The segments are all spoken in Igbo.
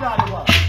God it was.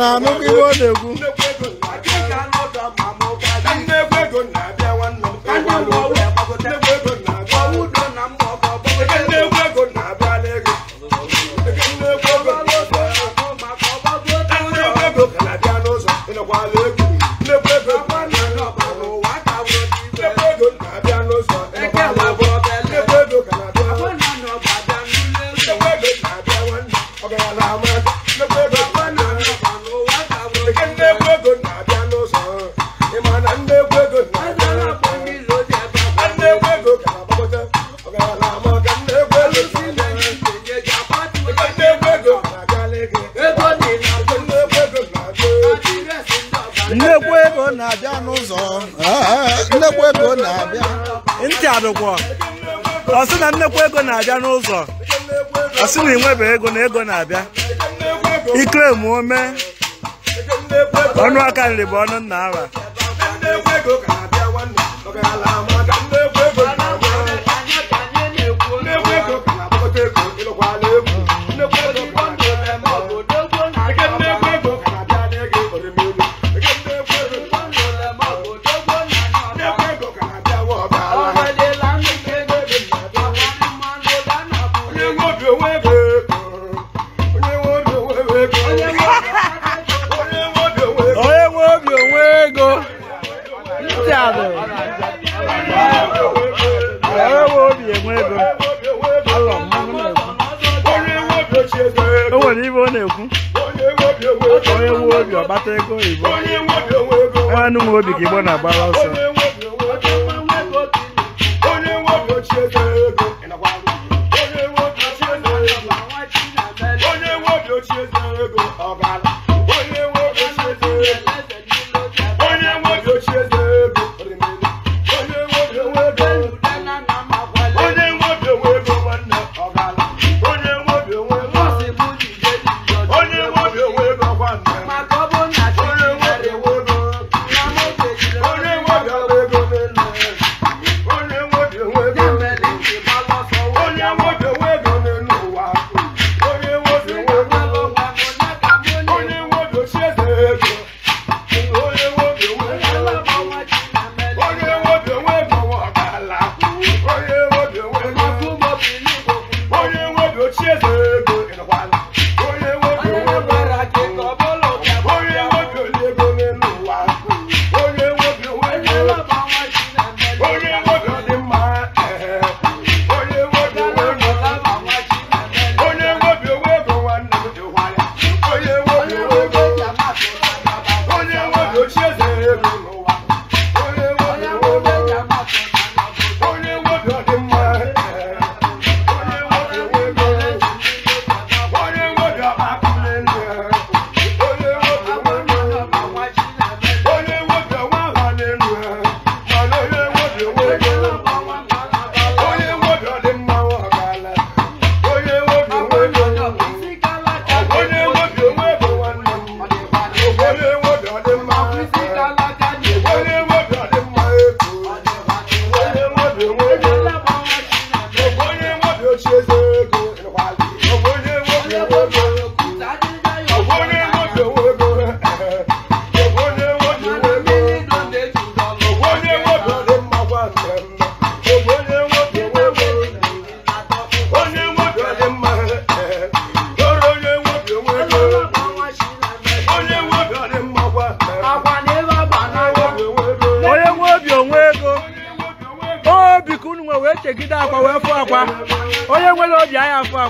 na mu ki wo de ku ego na-abịa n'ụzọ ah, nnekwu ego na-abịa ntị adụkwọ ọ sị na nnekwu ego na-abịa n'ụzọ ọ sị na ịnwebe ego na ego na-abịa ikere ma ome ọnụ aka nri bụ ọnụ nna nata ego oyibo enwe ka igbo na-agbara ọsọ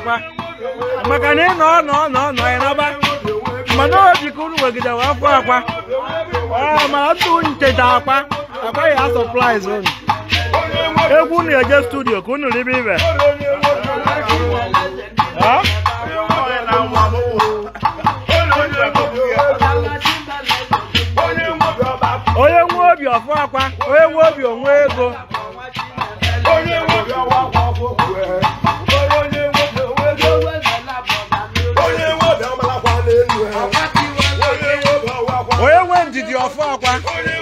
akwa maka na ị nọ nọ nọ nọ ya n'ọba mana o jikọ unu wegidewe afọ akwa mana ntụ ncheta akwa akwa ya sọpraịz unu egwu unu eje studio ka unu ribe ibe onye nwe obi ọfọ akwa onye nwe obi onwe ego 我管。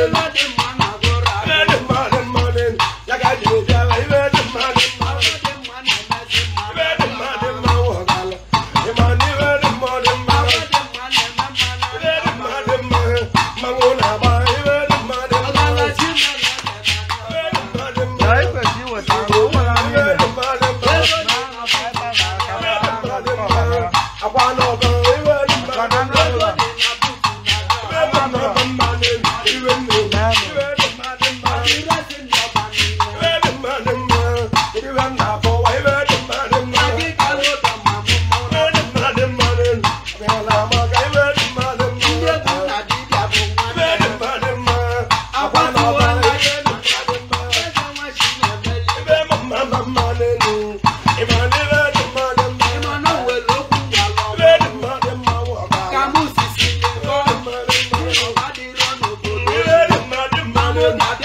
everybody yoga.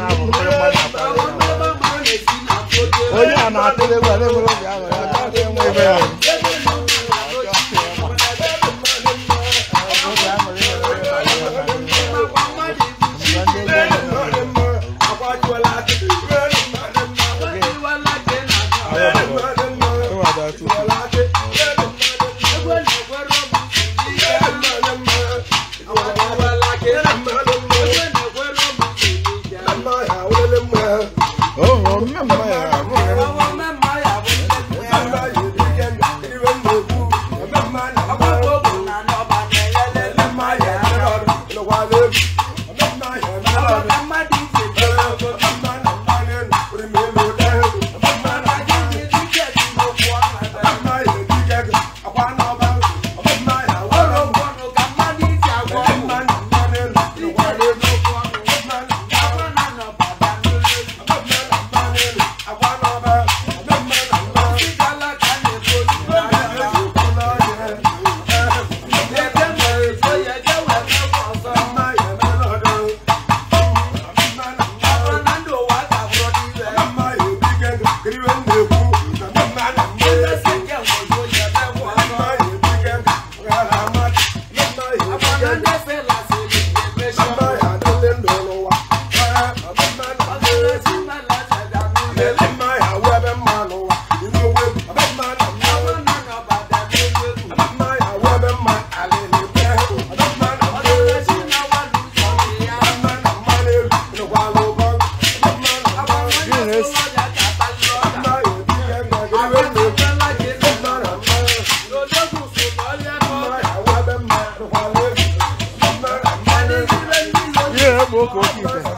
bravo. bụ ụka oke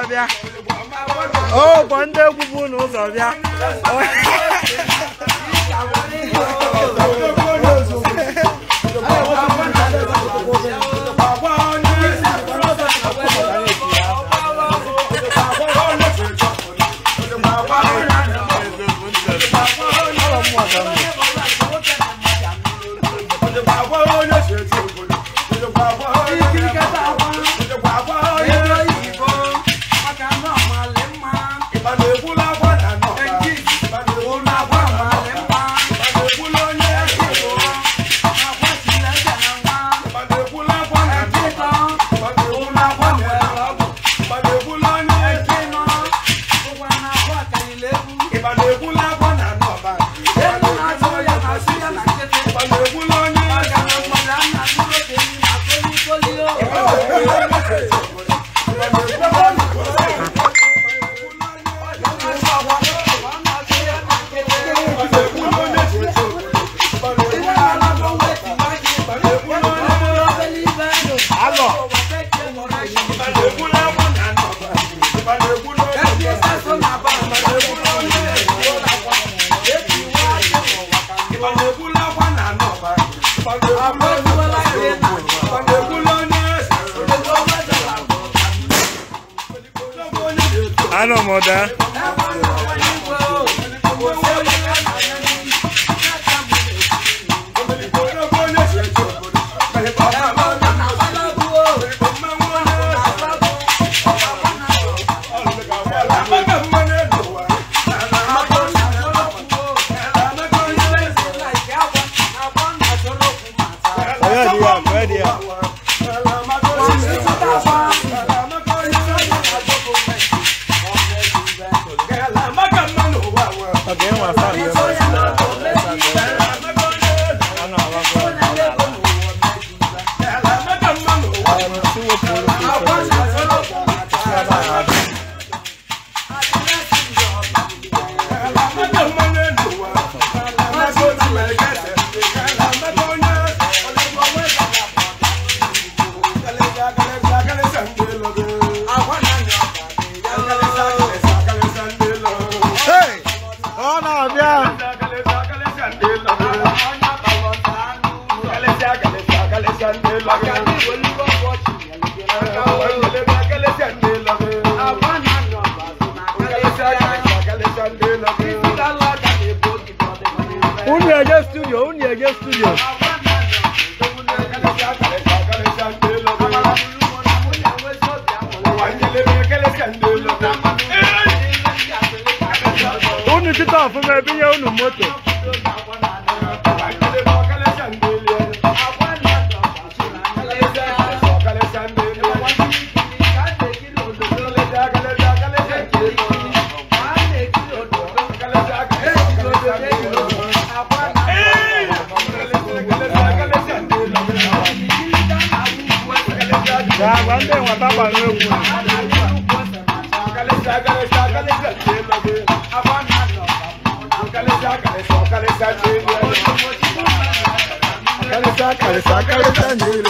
ụzọ bịa bụ ndị egwu bụ ụzọ bịa incomodar. Yàgbá ń bẹ̀ wọ́n tábà ní ewu. Kàlẹ́sà kàlẹ́sà kàlẹ́sà ṣe é lọ́gbẹ́. Abá mi àná. Kàlẹ́sà kàlẹ́sà kàlẹ́sà ṣe é lọ́gbẹ́. Kàlẹ́sà kàlẹ́sà kàlẹ́sà ṣe é lọ́gbẹ́.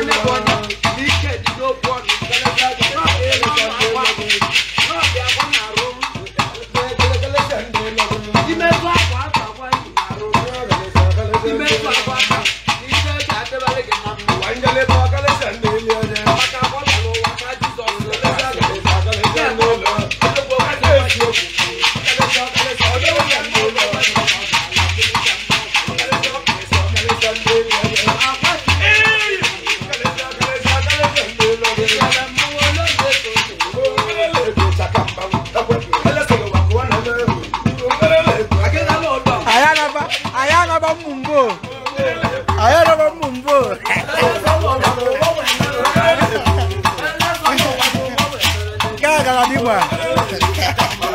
干啥地步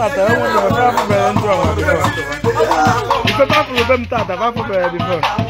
tata ẹ wọn lọ fẹ afọ bẹrẹ ntọ wọn before ìfẹ bá fọ bẹrẹ mi tata bá fọ bẹrẹ before.